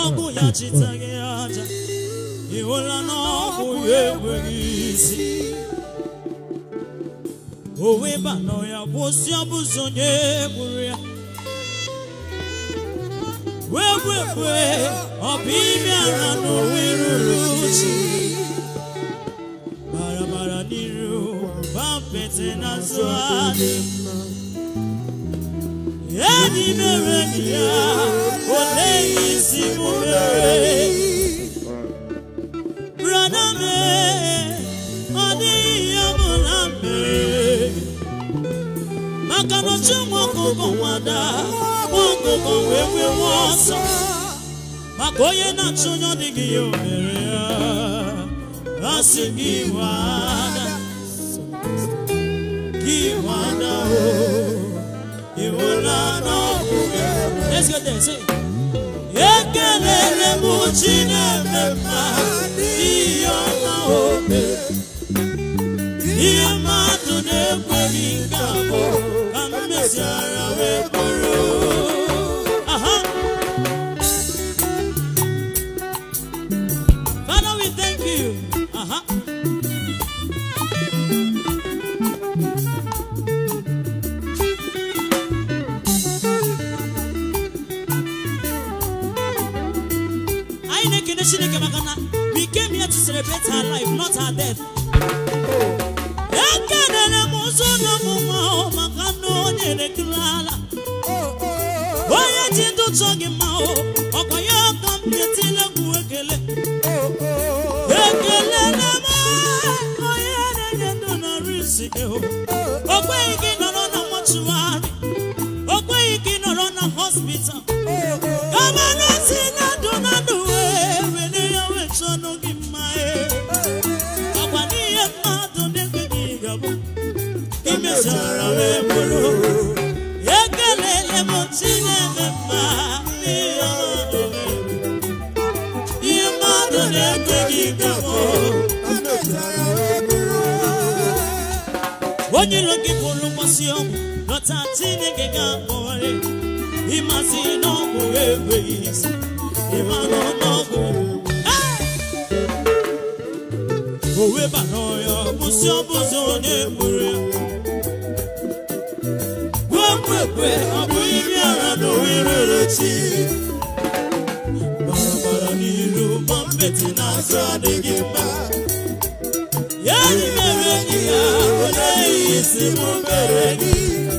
ọgwụghachiteghị aja iwela n'ọgwụ ya enweghị isi owe banọ ya kwụsị ọbụzi onye gburu ya wegwegwe ọ bụ ime we na owe ruru uchi barabara n'iru bapete na azụ adị enyi mere ya gbogbo wọn dá wọn gbogbo wọn sọ màkà onye na-achụnye ọdịghị ya ohere ya asị gị wada gị wada o ịhụla n'ọgwụ gị ekelere m Chineke ma ihe ọma obe ihe mmadụ na-ekweghị nke abụọ Father, we thank you. Uh-huh. We came here to celebrate her life, not her death. Chike o. Ogbe igi nọrọ na mọchuari, ogbe igi nọrọ na hospital. Gọvanọ gị bụrụ mmasị ọgwụ nọta Chineke ga-akpọrị ịmasị n'ọgwụ enweghị isi ịmanụ n'ọgwụ o webara ọya kwụsị ọbụzọ onye gburu gbuo mkpekpe ọ bụ iri ara na owererechi barabara n'iru ma mbeti n'azụ adịghị mma isi m mere gị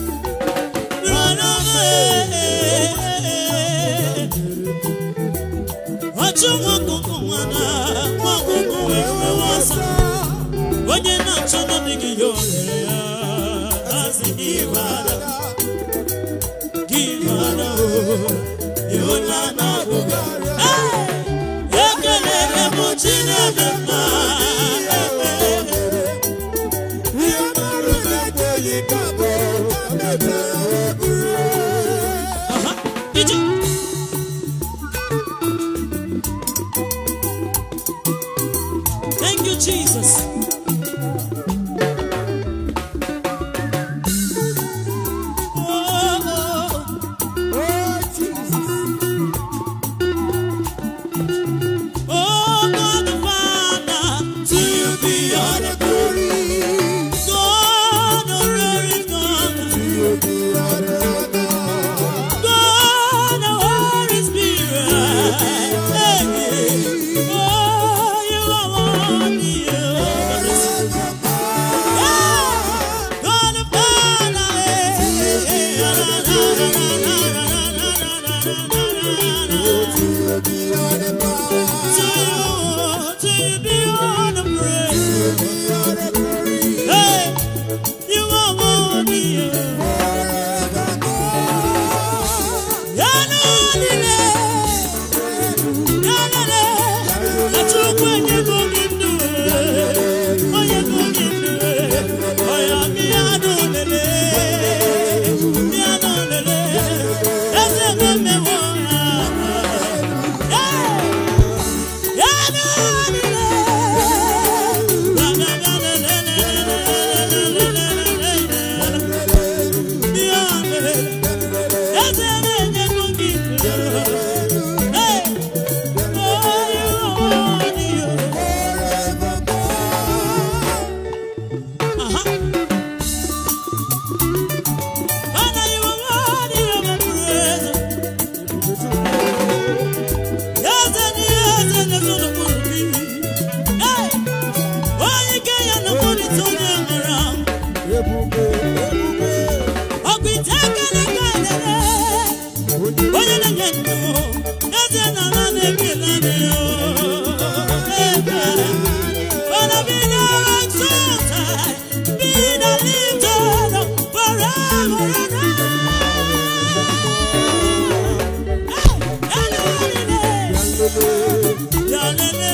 Hallelujah.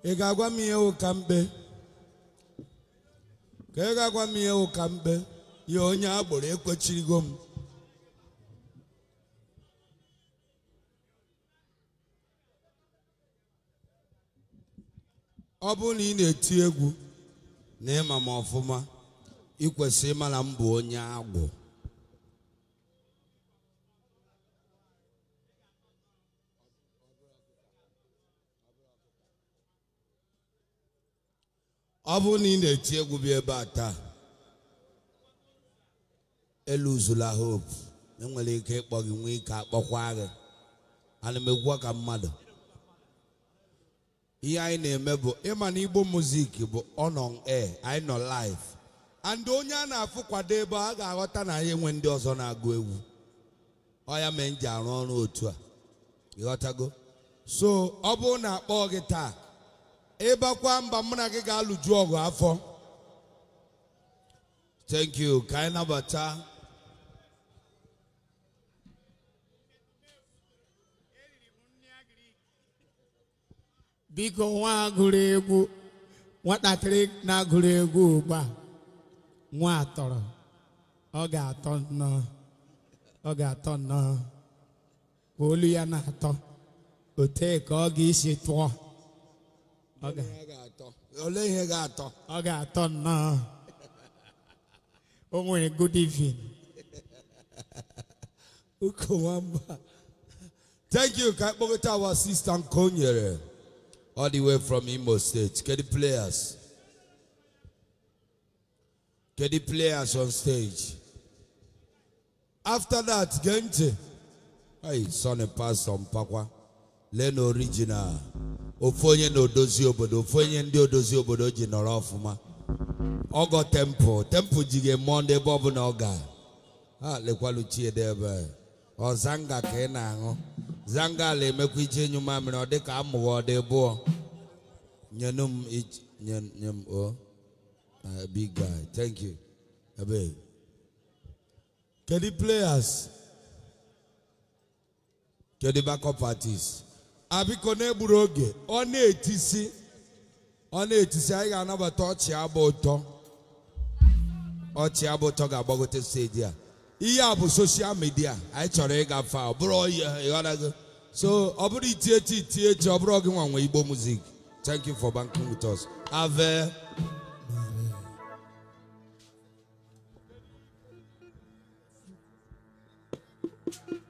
ị ga-agwa m ihe ụka mkpe ka ị ga-agwa m ihe ụka mkpe ya onye agbụrụ ekwechirigo m ọ bụrụ na ị na-eti egwu na ịma m ọfụma ị kwesịrị ịma na m bụ onye agbọ ọ bụrụ na ị na-eti egwu bịa ebe a taa eluzula hope enwere ike ịkpọ gị nwee ike akpọkwa gị ana m ka mmadụ ihe anyị na-eme bụ ịma na igbo muzik bụ ọnọn air anyị nọ live and onye a na-afụ kwado ebe a ga-aghọta na anyị enwe ndị ọzọ na-agụ egwu ọ ya mee m ji arụ ọrụ otu a ịghọtago so ọ bụrụ na akpọọ gị taa ịbakwa mba mụ na gị ga-alụju ọgụ afọ thank you ka anyị nabata biko nwa gụrụ egwu nwatakịrị na-agụrụ egwu ugbu a nwa atọrọ ọ ga-atọ nnọọ ọ ga-atọ nnọọ olu ya na-atọ otee ka ọ ga-esi tụọ olee ihe ga-atọ ọ ga-atọ nnọọ o nwere good evening uko nwamba thank you ka kpọkọta our sister nke o nyere all the way from Imo State kedu players kedu players on stage after that gee ntị hey sonny pastor mpakwa lee na original ofu onye na-odozi obodo ofu onye ndị odozi obodo ji nọrọ ọfụma ọgọ tempụ tempụ ji ga-eme ndị ebe ọbụla ọ ga ha lekwalu ebe ọ zanga ka ị na-aṅụ zanga ala emekwa ije enyu mamịrị ọ dịka amụghị ọ dị bụọ nyenu m nye m o big guy thank you ebe kedu players kedu backup artists abiko na-egburu oge ọ na-etisi ọ na-etisi anyị ga-anabata ọchị agba ụtọ ọchị agba ụtọ ga-agbagote steji a ihe a bụ soshal midia anyị chọrọ ịga ịgafe ọ bụrụ gị so ọ bụrụ iti echi iti echi ọ bụrụ nwa nwanwe igbo muzik thank you for banking with us ave Thank you.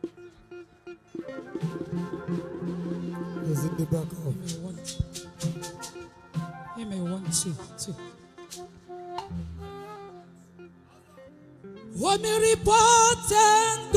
the back up. Amen. Amen. One, two, two. Omi rí pọ́tẹ́ńtì.